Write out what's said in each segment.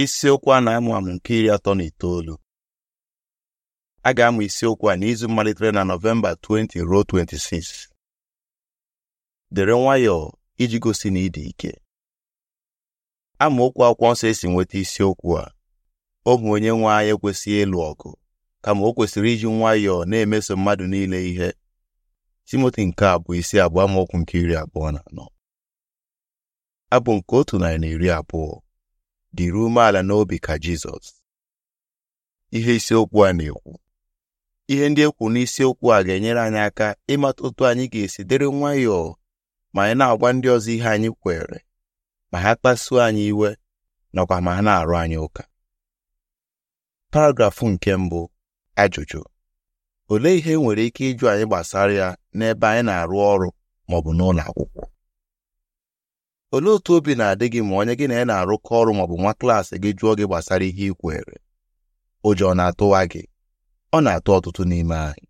isiokwu a na-amụ amụ nke iri atọ na itoolu a ga-amụ isiokwu a n'izu malitere na nọvemba 20 ruo 26 dere nwayọọ iji gosi na ịdị ike amaokwu akwụkwọ nsọ esi nweta isiokwu a ohu onye nwe anyị ekwesịghị ịlụ ọgụ kama o kwesịrị iji nwayọọ na-emeso mmadụ niile ihe Timoti nke abụọ isi abụọ amaokwu nke iri abụọ na anọ abụ nke otu narị na iri abụọ dịrị umeala n'obi ka Jizọs ihe isiokwu a na-ekwu ihe ndị ekwu n'isiokwu a ga-enyere anyị aka ịmata otu anyị ga-esi dịrị nwayọọ ma anyị na-agwa ndị ọzọ ihe anyị kwere ma ha kpasuo anyị iwe nakwa ma ha na-arụ anyị ụka paragrafụ nke mbụ ajụjụ olee ihe e nwere ike ịjụ anyị gbasara ya n'ebe anyị na-arụ ọrụ ma ọ bụ n'ụlọ akwụkwọ olee otu obi na-adị gị ma onye gị na ya na-arụkọ ọrụ maọbụ nwa klaasị gị jụọ gị gbasara ihe ị kwere ụjọ na-atụwa gị ọ na-atụ ọtụtụ n'ime anyị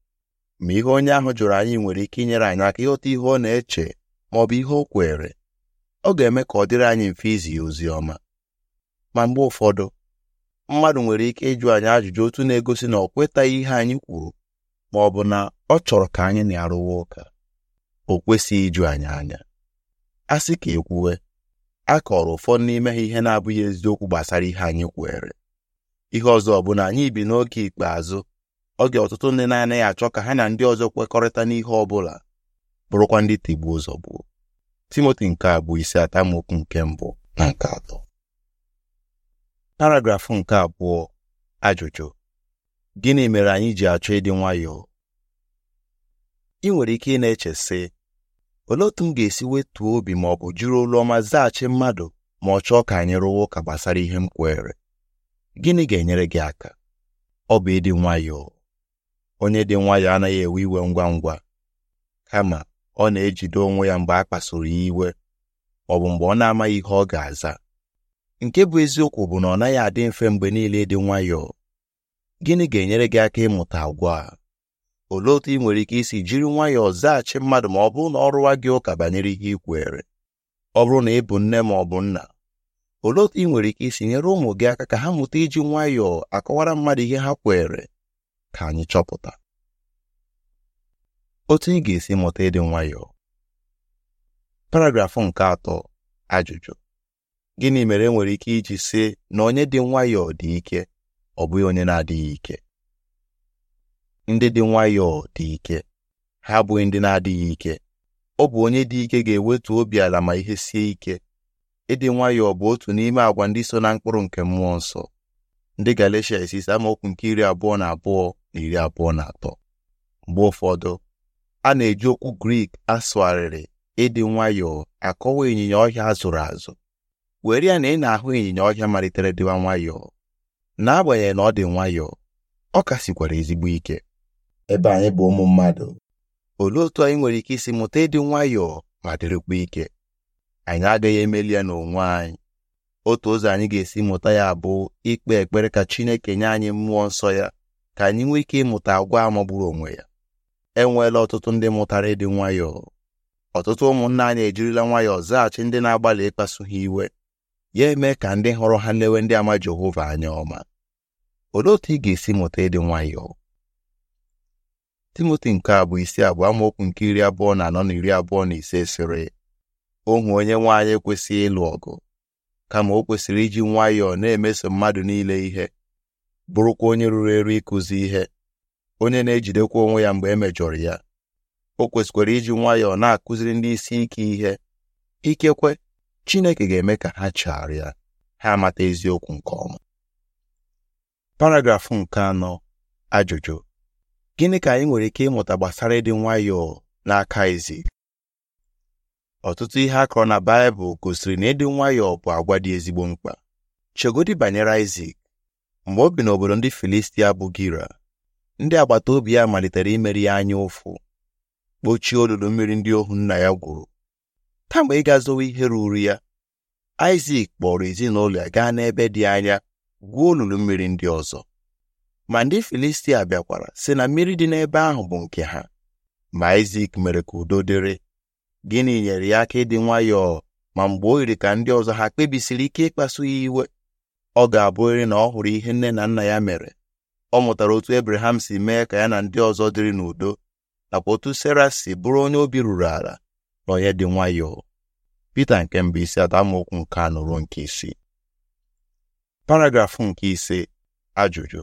ma ihe onye ahụ jụrụ anyị nwere ike inyere anyị aka ịghọta ihe ọ na-eche maọbụ ihe o kwere ọ ga-eme ka ọ dịrị anyị mfe izi ya ozi ọma ma mgbe ụfọdụ mmadụ nwere ike ịjụ anyị ajụjụ otu na-egosi na ọ kwetaghị ihe anyị kwuru ma ọ bụ na ọ chọrọ ka anyị na-arụwa ụka o kwesịghị ịjụ anyị anya a sị ka ekwuwe a kọrọ ụfọdụ n'ime ha ihe na-abụghị eziokwu gbasara ihe anyị kwere ihe ọzọ bụ na anyị bi n'oge ikpeazụ oge ọtụtụ ndị na-anaghị achọ ka ha na ndị ọzọ kwekọrịta n'ihe ọ bụla bụrụkwa ndị ụzọ zọgbuo Timoti nke abụọ isi atamokwu nke mbụ na nke atọ paragrafụ nke abụọ ajụjụ gịnị mere anyị ji achọ ịdị nwayọọ ị nwere ike ị na-eche sị olee otu m ga-esi wetuo obi ma ọ bụ jiri olu ọma zaghachi mmadụ ma ọ chọọ ka anyị rụwa ụka gbasara ihe m kwere? gịnị ga-enyere gị aka ọ bụ ịdị nwayọọ onye dị nwayọọ anaghị ewe iwe ngwa ngwa kama ọ na-ejide onwe ya mgbe a kpasoro ya iwe ọ bụ mgbe ọ na-amaghị ihe ọ ga-aza nke bụ eziokwu bụ na ọ naghị adị mfe mgbe niile dị nwayọọ gịnị ga-enyere gị aka ịmụta agwa a olee otu ị nwere ike isi jiri nwayọọ zaghachi mmadụ ma ọ bụrụ na ọ rụwa gị ụka banyere ihe ị kwere ọ bụrụ na ị bụ nne ma ọ bụ nna olee otu ị nwere ike isi nyere ụmụ gị aka ka ha mụta iji nwayọọ akọwara mmadụ ihe ha kwere ka anyị chọpụta otu ị ga-esi mụta ịdị nwayọọ paragrafụ nke atọ ajụjụ gịnị mere enwere ike iji sị na onye dị nwayọọ dị ike ọ bụghị onye na-adịghị ike ndị dị nwayọọ dị ike ha abụghị ndị na-adịghị ike ọ bụ onye dị ike ga-ewetu obi ala ma ihe sie ike ịdị nwayọọ bụ otu n'ime àgwà ndị so na mkpụrụ nke mmụọ nsọ ndị Galatia isi amaokwu nke iri abụọ na abụọ na iri abụọ na atọ mgbe ụfọdụ a na-eji okwu Grik asụgharịrị ịdị nwayọọ akọwa ịnyịnya ọhịa azụrụ azụ were ya na ị na-ahụ ịnyịnya ọhịa malitere dịwa nwayọọ n'agbanyeghị na ọ dị nwayọọ ọ ka sikwara ezigbo ike ebe anyị bụ ụmụ mmadụ olee otu anyị nwere ike isi mụta ịdị nwayọọ ma dịrịkwa ike anyị agaghị emeli ya n'onwe anyị otu ụzọ anyị ga-esi mụta ya bụ ikpe ekpere ka Chineke nye anyị mmụọ nsọ ya ka anyị nwee ike ịmụta agwa magburu onwe ya enweela ọtụtụ ndị mụtara ịdị nwayọọ ọtụtụ ụmụnna anyị ejirila nwayọọ zaghachi ndị na-agbalị ịkpasu ha iwe ya eme ka ndị hụrụ ha lewe ndị ama Jehova anya ọma olee otu ị ga-esi mụta ịdị nwayọọ timoti nke abụọ isi abụọ amaokwu nke iri abụọ na anọ na iri abụọ na ise sịrị ohu onye nwaanyị anyị ịlụ ọgụ kama o kwesịrị iji nwayọọ na-emeso mmadụ niile ihe bụrụkwa onye ruru eru ịkụzi ihe onye na-ejidekwa onwe ya mgbe e mejọrọ ya o kwesịkwara iji nwayọọ na-akụziri ndị isi ike ihe ikekwe Chineke ga-eme ka ha chegharịa ha amata eziokwu nke ọma paragrafụ nke anọ ajụjụ gịnị ka anyị nwere ike ịmụta gbasara ịdị nwayọọ n'aka ezi ọtụtụ ihe akọrọ na Baịbụl gosiri na ịdị nwayọọ bụ agwa dị ezigbo mkpa chegodi banyere Isak mgbe o bi n'obodo ndị Filistia bụ Gira ndị agbata obi ya malitere imeri ya anya ụfụ kpochie olulu mmiri ndị ohu nna ya gwuru kemgbe ịga zowe ihe ruru ya Isak kpọrọ ezinụlọ ya gaa n'ebe dị anya gwuo olulu mmiri ndị ọzọ ma ndị Filistia bịakwara si na mmiri dị n'ebe ahụ bụ nke ha ma Isak mere ka udo dịrị gịnị nyere ya aka ịdị nwayọọ ma mgbe o yiri ka ndị ọzọ ha kpebisiri ike ịkpasu ya iwe ọ ga-abụrịrị na ọ hụrụ ihe nne na nna ya mere ọ mụtara otu ebraham si mee ka ya na ndị ọzọ dịrị n'udo nakwa otu Sera si bụrụ onye obi ruru ala na onye dị nwayọọ Pita nke mbụ isi atọ nke anụrụ nke isii paragrafụ nke ise ajụjụ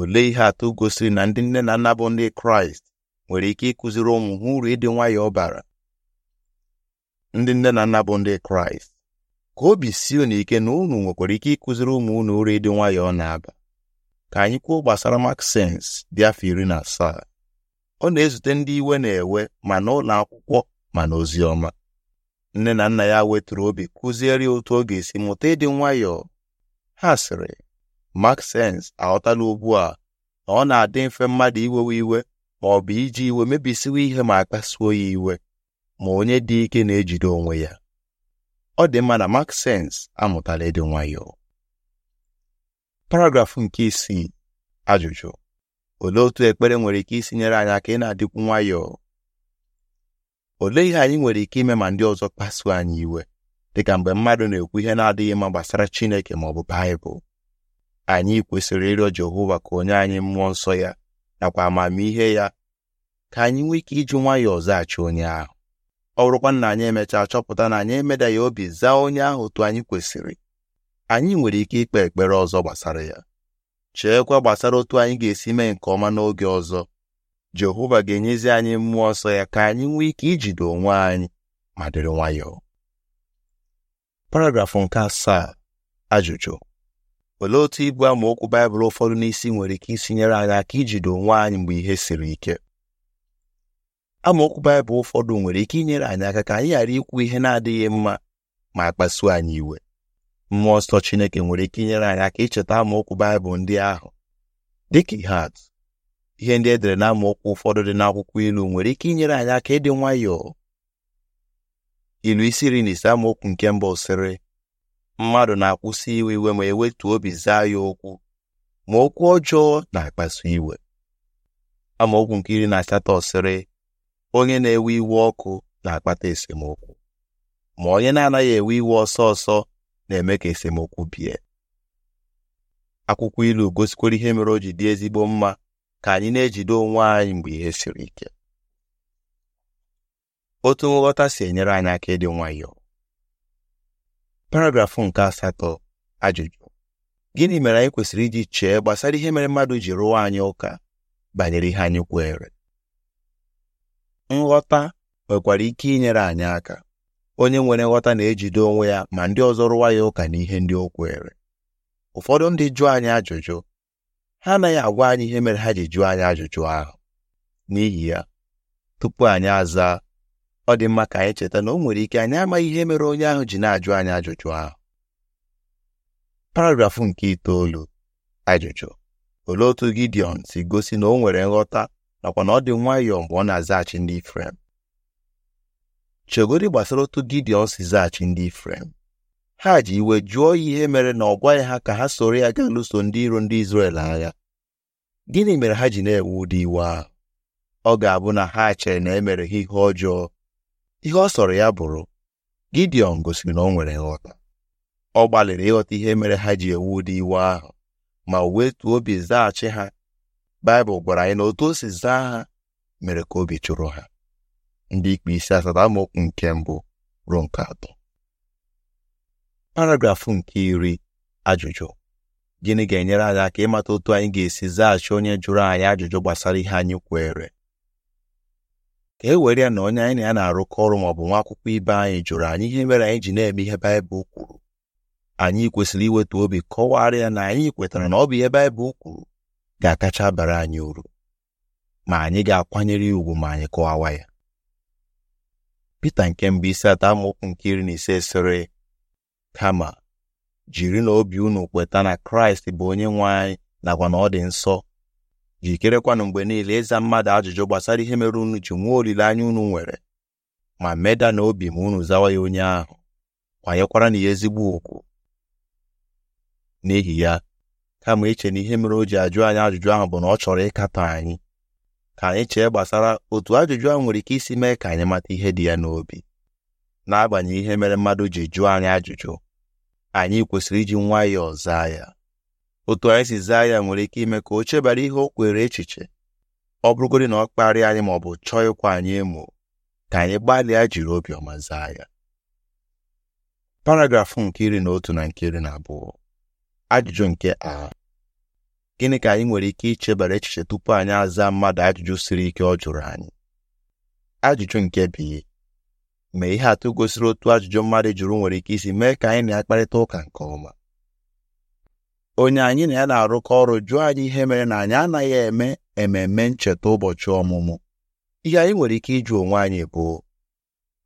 olee ihe atụ gosiri na ndị nne na nna bụ ndị kraịst nwere ike ịkụziri ụmụ ha uru ịdị nwayọọ bara ndị nne na nna bụ ndị kraịst ka obi si unu ike na unu nwekwara ike ịkụziri ụmụ unu uru ịdị nwayọọ na-aba ka anyị kwuo gbasara maksens dị afọ iri na asaa ọ na-ezute ndị iwe na-ewe ma n'ụlọ akwụkwọ ma n'ozi ọma nne na nna ya wetụrụ obi kụziere ya otu ọ ga-esi mụta ịdị nwayọọ ha sịrị Maxence aghọtala ugbu a na ọ na-adị mfe mmadụ iwewe iwe ma ọ bụ iji iwe mebisiwe ihe ma kpasuo ya iwe ma onye dị ike na-ejide onwe ya ọ dị mma na Maxence amụtala ịdị nwayọọ paragrafụ nke isii ajụjụ olee otu ekpere nwere ike isi nyere anyị aka ị na-adịkwu nwayọọ olee ihe anyị nwere ike ime ma ndị ọzọ kpasuo anyị iwe dịka mgbe mmadụ na-ekwu ihe na-adịghị mma gbasara Chineke ma ọ bụ Baịbụl anyị kwesịrị ịrịọ Jehova ka onye anyị mmụọ nsọ ya nakwa amamihe ya ka anyị nwee ike iji nwayọọ zaghachi onye ahụ ọ bụrụkwa na anyị emechaa chọpụta na anyị emeda ya obi zaa onye ahụ otu anyị kwesịrị anyị nwere ike ikpe ekpere ọzọ gbasara ya cheekwa gbasara otu anyị ga-esi mee nke ọma n'oge ọzọ Jehova ga-enyezi anyị mmụọ nsọ ya ka anyị nwee ike ijide onwe anyị ma dịrị nwayọọ paragrafụ nke asaa ajụjụ olee otu ibu amaokwu baịbụl ụfọdụ n'isi nwere ike isi nyere anyị aka ijide onwe anyị mgbe ihe siri ike amaokwu baịbụl ụfọdụ nwere ike inyere anyị aka ka anyị ghara ikwu ihe na-adịghị mma ma kpasuo anyị iwe mmụọ nsọ Chineke nwere ike inyere anyị aka icheta amaokwu baịbụl ndị ahụ dịka ihe atụ ihe ndị e dere na amaokwu ụfọdụ dị n'akwụkwọ ilu nwere ike inyere anyị aka ịdị nwayọọ ilu isi iri na ise amaokwu nke mbụ sịrị mmadụ na-akwụsị iwe iwe ma ewetu obi zaa ya okwu ma okwu ọjọọ na-akpasu iwe amaokwu nke iri na asatọ sịrị onye na-ewe iwe ọkụ na-akpata esemokwu ma onye na-anaghị ewe iwe ọsọ ọsọ na-eme ka esemokwu bie akwụkwọ ilu gosikwara ihe mere o ji dị ezigbo mma ka anyị na-ejide onwe anyị mgbe ihe siri ike otu nghọta si enyere anyị aka ịdị nwayọọ paragrafụ nke asatọ ajụjụ gịnị mere anyị kwesịrị iji chee gbasara ihe mere mmadụ ji rụwa anyị ụka banyere ihe anyị kweere nghọta nwekwara ike inyere anyị aka onye nwere nghọta na-ejide onwe ya ma ndị ọzọ rụwa ya ụka n'ihe ndị o kweere ụfọdụ ndị jụọ anyị ajụjụ ha anaghị agwa anyị ihe mere ha ji jụọ anyị ajụjụ ahụ n'ihi ya tupu anyị aza ọ dị mma ka anyị cheta na o nwere ike anyị amaghị ihe mere onye ahụ ji na-ajụ anyị ajụjụ ahụ paragrafụ nke itoolu ajụjụ olee otu Gideon si gosi na o nwere nghọta nakwa na ọ dị nwayọọ mgbe ọ na-azaghachi ndị Ifrem chegodi gbasara otu Gideon si zaghachi ndị Ifrem ha ji iwe jụọ ihe mere na ọ gwaghị ha ka ha soro ya gaa lụso ndị iro ndị Izrel agha gịnị mere ha ji na-ewe ụdị iwe ahụ ọ ga-abụ na ha chere na emere ha ihe ọjọọ ihe ọ sọrọ ya bụrụ Gidiọn gosiri na ọ nwere nghọta ọ gbalịrị ịghọta ihe mere ha ji ewu ụdị iwe ahụ ma wetuo obi zaghachi ha Baịbụl gwara anyị na otu o si zaa ha mere ka obi chụrụ ha ndị ikpe isi asatọ amaokwu nke mbụ ruo nke atọ paragrafụ nke iri ajụjụ gịnị ga-enyere anyị aka ịmata otu anyị ga-esi zaghachi onye jụrụ anyị ajụjụ gbasara ihe anyị kweere ka e were ya na onye anyị na ya na-arụkọ ọrụ maọbụ nwa akwụkwọ ibe anyị jụrụ anyị ihe mere anyị ji na-eme ihe baịbụl kwuru anyị kwesịrị iweta obi kọwara ya na anyị kwetara na ọ bụ ihe baịbụl kwuru ga-akacha bara anyị uru ma anyị ga-akwanyere ya ugwu ma anyị kọwawa ya Pita nke mbụ isi atọ amaokwu nke iri na ise sịrị kama jiri na obi unu kweta na Kraịst bụ onye nwe anyị nakwa na ọ dị nsọ jikerekwanụ mgbe niile ịza mmadụ ajụjụ gbasara ihe mere unu ji nwee olileanya unu nwere ma meda na obi ma unu zawa ya onye ahụ kwanyekwara na ya ezigbo ụkwụ. n'ihi ya kama iche na ihe mere o ji ajụ anyị ajụjụ ahụ bụ na ọ chọrọ ịkatọ anyị ka anyị chee gbasara otu ajụjụ ahụ nwere ike isi mee ka anyị mata ihe dị ya n'obi n'agbanyeghị ihe mere mmadụ ji jụọ anyị ajụjụ anyị kwesịrị iji nwayọọ zaa ya otu anyị si zaa ya nwere ike ime ka o chebara ihe o kwere echiche ọ bụrụgodị na ọ kparịa anyị ma ọ bụ chọọ ịkwa anyị emo ka anyị gbalịa jiri obiọma zaa ya paragrafụ nke iri na otu na nke iri na abụọ ajụjụ nke a gịnị ka anyị nwere ike ichebara echiche tupu anyị aza mmadụ ajụjụ siri ike ọ jụrụ anyị ajụjụ nke bi ma ihe atụ gosiri otu ajụjụ mmadụ jụrụ nwere ike isi mee ka anyị na-akparịta ụka nke ọma onye anyị na ya na-arụkọ ọrụ jụọ anyị ihe mere na anyị anaghị eme ememe ncheta ụbọchị ọmụmụ ihe anyị nwere ike ịjụ onwe anyị bụ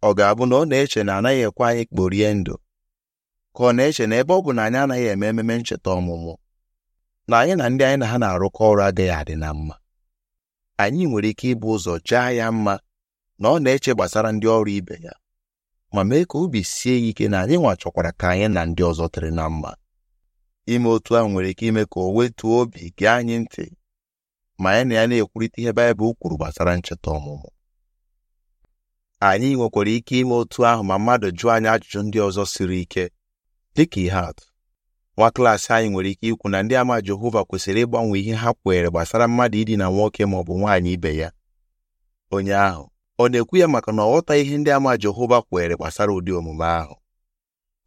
ọ ga-abụ na ọ na-eche na anaghị ekwe anyị kporie ndụ ka ọ na-eche na ebe ọ bụ na anyị anaghị eme ememe ncheta ọmụmụ na anyị na ndị anyị na ha na-arụkọ ọrụ adịghị adị na mma anyị nwere ike ịbụ ụzọ chaa ya mma na ọ na-eche gbasara ndị ọrụ ibe ya ma mee ka obi sie ya ike na anyị nwa chọkwara ka anyị na ndị ọzọ tere na mma ime otu ahụ nwere ike ime ka o wetuo obi gee anyị ntị ma anyị na ya na-ekwurịta ihe Baịbụl kwuru gbasara ncheta ọmụmụ anyị nwekwara ike ime otu ahụ ma mmadụ jụọ anyị ajụjụ ndị ọzọ siri ike dịka ihe atụ nwa klaasị anyị nwere ike ikwu na ndị ama Jehova kwesịrị ịgbanwe ihe ha kweere gbasara mmadụ idina nwoke ma ọ bụ nwaanyị ibe ya onye ahụ ọ na-ekwu ya maka na ọ ghọtaghị ihe ndị ama Jehova kweere gbasara ụdị omume ahụ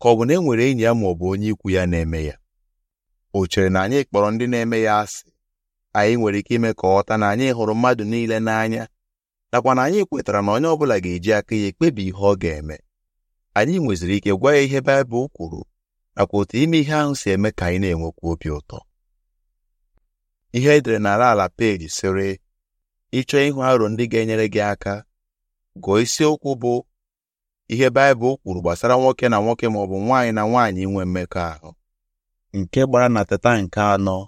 ka ọ bụ na e nwere enyi ya ma ọ bụ onye ikwu ya na-eme ya o chere na anyị kpọrọ ndị na-eme ya asị anyị nwere ike ime ka ọ ghọta na anyị hụrụ mmadụ niile n'anya nakwa na anyị kwetara na onye ọbụla ga-eji aka ya ekpebi ihe ọ ga-eme anyị nweziri ike gwa ya ihe Baịbụl kwuru nakwa otu ime ihe ahụ si eme ka anyị na-enwekwa obi ụtọ ihe edere n'ala ala peji sịrị ịchọọ ịhụ aro ndị ga-enyere gị aka gụọ isiokwu bụ ihe Baịbụl kwuru gbasara nwoke na nwoke ma ọ bụ nwaanyị na nwaanyị inwe mmekọahụ nke gbara na teta nke anọ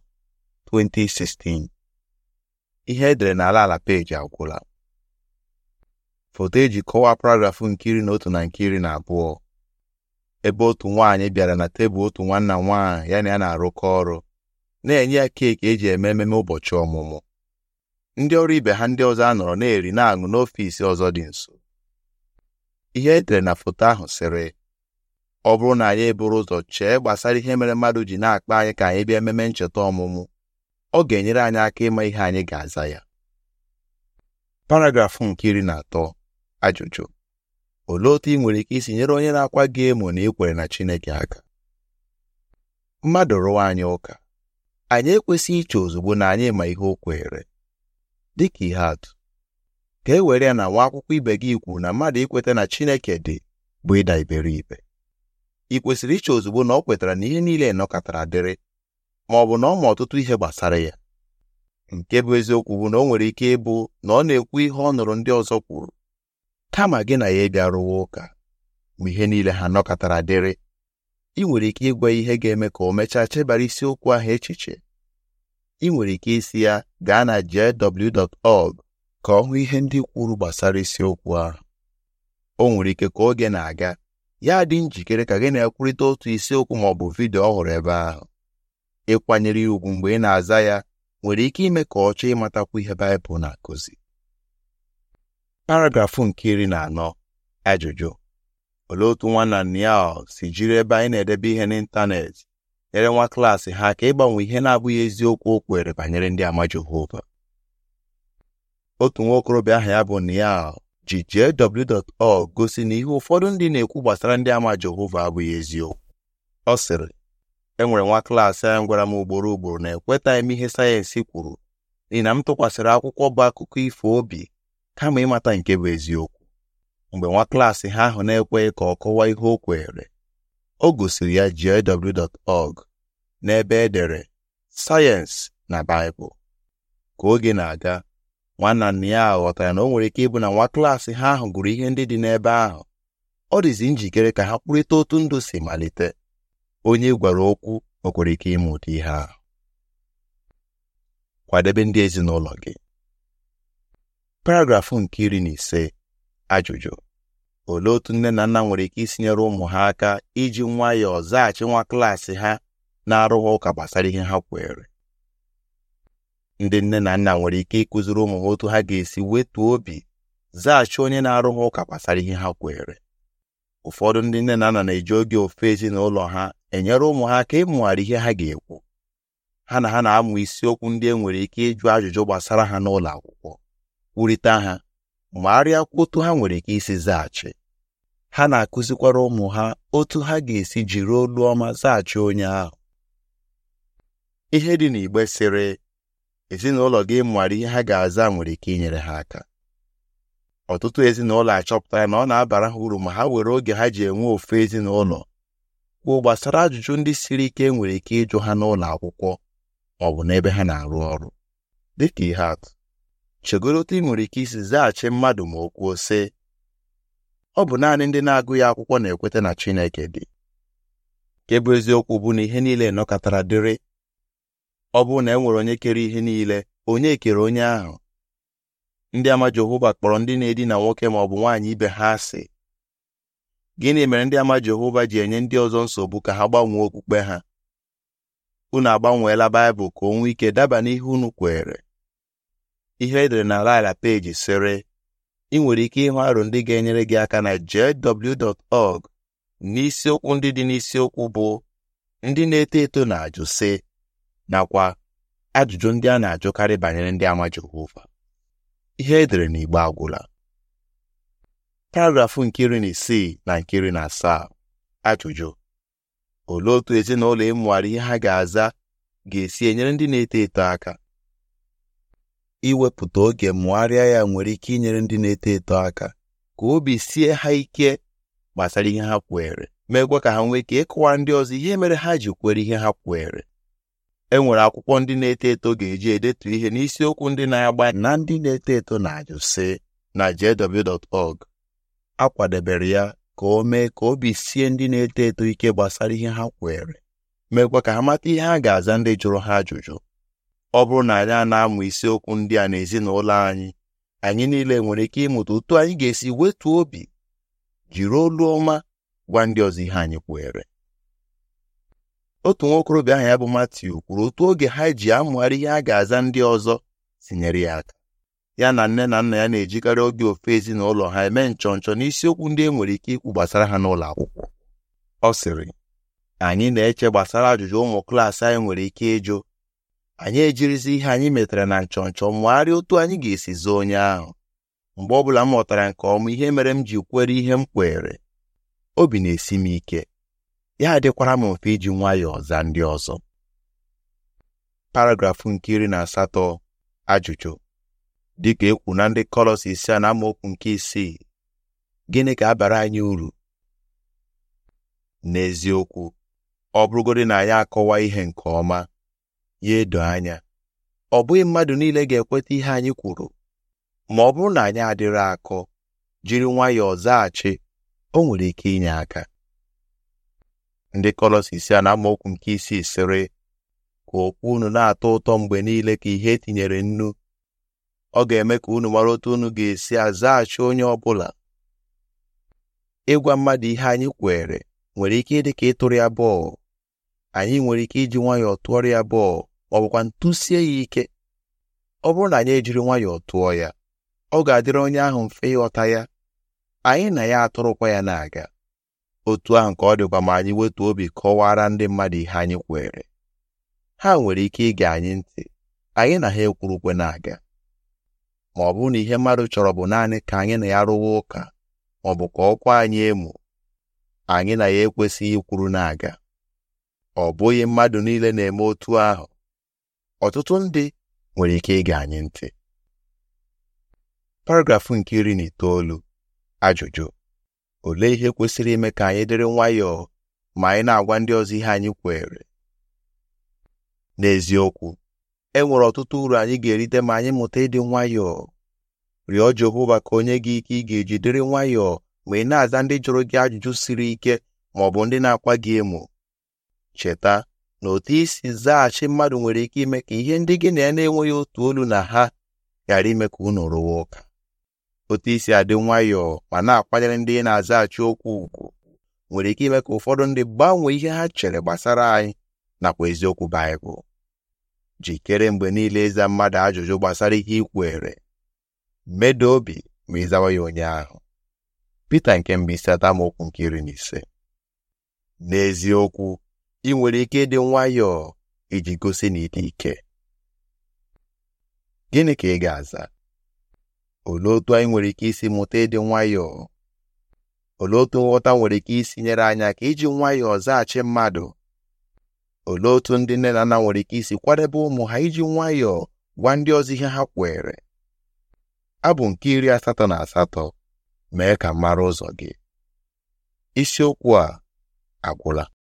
2016 ihe edere na ala ala peji agwụla foto eji kọwaa paragrafụ nke iri na otu na nke iri na abụọ ebe otu nwaanyị bịara na tebụl otu nwanna nwaanyị ya na ya na-arụkọ ọrụ na-enye ya keeki eji eme ememe ụbọchị ọmụmụ ndị ọrụ ibe ha ndị ọzọ a nọrọ na-eri na-aṅụ n'ọfiisi ọzọ dị nso ihe edere na foto ahụ sịrị ọ bụrụ na anyị eburu ụzọ chee gbasara ihe mere mmadụ ji na-akpa anyị ka anyị bịa ememe ncheta ọmụmụ ọ ga-enyere anyị aka ịma ihe anyị ga-aza ya paragrafụ nke iri na atọ ajụjụ olee otu ị nwere ike isi nyere onye na-akwa gị emo na ekwere na Chineke aka mmadụ rụwa anyị ụka anyị ekwesịghị iche ozugbo na anyị ma ihe o kwere dịka ihe atụ ka e were ya na nwa akwụkwọ ibe gị ikwu na mmadụ ikweta na Chineke dị bụ ịda iberibe ị kwesịrị iche ozugbo na ọ kwetara na ihe niile nọkọtara dịrị ma ọ bụ na ọ ma ọtụtụ ihe gbasara ya nke bụ eziokwu bụ na ọ nwere ike ịbụ na ọ na-ekwu ihe ọ nụrụ ndị ọzọ kwuru kama gị na ya ịbịa rụwa ụka ma ihe niile ha nọkọtara dịrị ị nwere ike ịgwa ihe ga-eme ka o mechaa chebara isiokwu ahụ echiche ị nwere ike isi ya gaa na jw.org ka ọ hụ ihe ndị kwuru gbasara isiokwu ahụ o nwere ike ka oge na-aga ya dị njikere ka gị na-ekwurịta otu isiokwu ma ọ bụ vidio ọhụrụ ebe ahụ ịkwanyere ya ugwu mgbe ị na-aza ya nwere ike ime ka ọ chọọ ịmatakwu ihe Baịbụl na-akụzi paragrafụ nke iri na anọ ajụjụ olee otu nwanna Niall si jiri ebe anyị na-edebe ihe n'ịntanetị nyere nwa klaasị ha ka ịgbanwe ihe na-abụghị eziokwu o kwere banyere ndị ama Jehova otu nwa okorobịa aha ya bụ Niall ji jw.org gosi na ihe ụfọdụ ndị na-ekwu gbasara ndị ama Jehova abụghị eziokwu ọ sịrị enwere nwa klaasị a gwara m ugboro ugboro na ekweta m ihe sayensị kwuru n'ihi na m tụkwasịrị akwụkwọ bụ akụkọ ifo obi kama ịmata nke bụ eziokwu mgbe nwa klaasị ha ahụ na-ekweghị ka ọ kọwaa ihe o kweere o gosiri ya jw.org n'ebe edere sayensị na baịbụl ka oge na-aga nwanna ya ahụ ghọtara na o nwere ike ịbụ na nwa klaasị ha ahụ gụrụ ihe ndị dị n'ebe ahụ ọ dịzi njikere ka ha kwurịta otu ndụ si malite onye gwara okwu o kwere ike ịma ụdị ihe ahụ kwadebe ndị ezinụlọ gị paragrafụ nke iri na ise ajụjụ olee otu nne na nna nwere ike isi nyere ụmụ ha aka iji nwayọọ zaghachi nwa klaasị ha na-arụghị ụka gbasara ihe ha kwere ndị nne na nna nwere ike ịkụziri ụmụ ha otu ha ga-esi wetuo obi zaghachi onye na-arụ ha ụka gbasara ihe ha kwere ụfọdụ ndị nne na nna na-eji oge ofe ezinụlọ ha enyere ụmụ ha aka ịmụgharị ihe ha ga-ekwu ha na ha na-amụ isiokwu ndị e nwere ike ịjụ ajụjụ gbasara ha n'ụlọ akwụkwọ kwurịta ha magharịa arịa otu ha nwere ike isi zaghachi ha na-akụzikwara ụmụ ha otu ha ga-esi jiri olu ọma zaghachi onye ahụ ihe dị n'igbe sịrị ezinụlọ gị nwara ihe ha ga-aza nwere ike inyere ha aka ọtụtụ ezinụlọ achọpụtara na ọ na-abara ha uru ma ha were oge ha ji enwe ofu ezinụlọ kwuo gbasara ajụjụ ndị siri ike e nwere ike ịjụ ha n'ụlọ akwụkwọ ọ bụ n'ebe ha na-arụ ọrụ dịka ihe atụ chegoro otu ị nwere ike isi zaghachi mmadụ ma o kwuo sị ọ bụ naanị ndị na-agụghị akwụkwọ na-ekweta na Chineke dị nke bụ eziokwu bụ na ihe niile nọkọtara dịrị ọ bụrụ na e nwere onye kere ihe niile onye kere onye ahụ ndị ama Jehova kpọrọ ndị na-edina nwoke ma ọ bụ nwaanyị ibe ha asị gịnị mere ndị ama Jehova ji enye ndị ọzọ nsogbu ka ha gbanwee okpukpe ha unu agbanweela Baịbụl ka onwe nwee ike daba n'ihe unu kwere ihe edere na laila peji sịrị ị nwere ike ịhụ aro ndị ga-enyere gị aka na jw.org n'isiokwu ndị dị n'isiokwu bụ ndị na-eto eto na-ajụ sị nakwa ajụjụ ndị a na-ajụkarị banyere ndị ama Jehova ihe edere n'igbe agwụla paragrafụ nke iri na isii na nke iri na asaa ajụjụ olee otu ezinụlọ ịmụgharị e ihe ha ga-aza ga-esi enyere ndị na-eto eto aka iwepụta oge mụgharịa ya nwere ike inyere ndị na-eto eto aka ka obi sie ha ike gbasara ihe ha kweere meekwa ka ha nwee ike ịkụwa ndị ọzọ ihe mere ha ji kwere ihe ha kweere enwere akwụkwọ ndị na-eto eto ga-eji edetu ihe n'isiokwu ndị na-agba na ndị na-eto eto na-ajụ na jw.org a kwadebere ya ka o mee ka obi sie ndị na-eto eto ike gbasara ihe ha kwere meekwa ka ha mata ihe ha ga-aza ndị jụrụ ha ajụjụ ọ bụrụ na anyị a na-amụ isiokwu ndị a n'ezinụlọ anyị anyị niile nwere ike ịmụta otu anyị ga-esi wetuo obi jiri olu ọma gwa ndị ọzọ ihe anyị kwere otu okorobịa aha ya bụ Matiu kwuru otu oge ha ji amụgharị ihe a ga-aza ndị ọzọ tinyere ya aka ya na nne na nna ya na-ejikarị oge ofe ezinụlọ ha eme nchọnchọ n'isiokwu ndị e nwere ike ikwu gbasara ha n'ụlọ akwụkwọ ọ sịrị anyị na-eche gbasara ajụjụ ụmụ klaasị anyị nwere ike ịjụ anyị ejirizi ihe anyị metara na nchọnchọ mụgharịa otu anyị ga-esi zoo onye ahụ mgbe ọbụla m ghọtara nke ọma ihe mere m ji kwere ihe m kwere obi na-esi m ike ya dịkwara m mfe iji nwayọọ zaa ndị ọzọ paragrafụ nke iri na asatọ ajụjụ dịka ekwu na ndị kọlọs isia a na amaokwu nke isii gịnị ka abara anyị uru n'eziokwu ọ bụrụgodị na ya akọwa ihe nke ọma ya edo anya ọ bụghị mmadụ niile ga-ekweta ihe anyị kwuru ma ọ bụrụ na anyị adịrị akọ jiri nwayọọ zaghachi o nwere ike inye aka ndị kọlọsis a na amaokwu nke isii sịrị ka okwu unu na-atọ ụtọ mgbe niile ka ihe etinyere nnu ọ ga-eme ka unu mara otu unu ga-esi azaghachi onye ọ bụla ịgwa mmadụ ihe anyị kwere nwere ike ịdị ka ịtụrụ ya bọọlụ anyị nwere ike iji nwayọọ tụọrọ ya bọọlụ ma ọ bụkwa ntụsie ya ike ọ bụrụ na anyị ejiri nwayọọ tụọ ya ọ ga-adịrị onye ahụ mfe ịghọta ya anyị na ya atụrụkwa ya na-aga otu ahụ nke ọ dịkwa ma anyị wetu obi kọwara ndị mmadụ ihe anyị kwere ha nwere ike ige anyị ntị anyị na ha ekwurukwe na-aga ma ọ bụrụ na ihe mmadụ chọrọ bụ naanị ka anyị na ya rụwa ụka ma ọ bụ ka ọkwa anyị emu anyị na ya ekwesịghị ikwuru na-aga ọ bụghị mmadụ niile na-eme otu ahụ ọtụtụ ndị nwere ike ige anyị ntị paragrafụ nke iri na itoolu ajụjụ olee ihe kwesịrị ime ka anyị dịrị nwayọọ ma anyị na-agwa ndị ọzọ ihe anyị kwere n'eziokwu e nwere ọtụtụ uru anyị ga-erite ma anyị mụta ịdị nwayọọ rịọ Jehova ka onye gị ike ị ga-eji dịrị nwayọọ ma ị na-aza ndị jụrụ gị ajụjụ siri ike ma ọ bụ ndị na-akwa gị emo cheta na otu isi zaghachi mmadụ nwere ike ime ka ihe ndị gị na ya na-enweghị otu olu na ha ghara ime ka unu rụwa ụka otu isi adị nwayọọ ma na-akwanyere ndị na-azaghachi okwu ugwu nwere ike ime ka ụfọdụ ndị gbanwee ihe ha chere gbasara anyị nakwa eziokwu Baịbụl jikere mgbe niile ịza mmadụ ajụjụ gbasara ihe ikwere medo obi ma ịzawa ya onye ahụ Pita nke mgbe isi atamokwu nke iri na ise n'eziokwu ị nwere ike ịdị nwayọọ iji gosi na ite ike gịnị ka ị ga-aza olee otu anyị nwere ike isi mụta ịdị nwayọọ olee otu nghọta nwere ike isi nyere anya ka iji nwayọọ zaghachi mmadụ olee otu ndị nne na nna nwere ike isi kwadebe ụmụ ha iji nwayọọ gwa ndị ọzọ ihe ha kwere abụ nke iri asatọ na asatọ mee ka mara ụzọ gị isiokwu a agwụla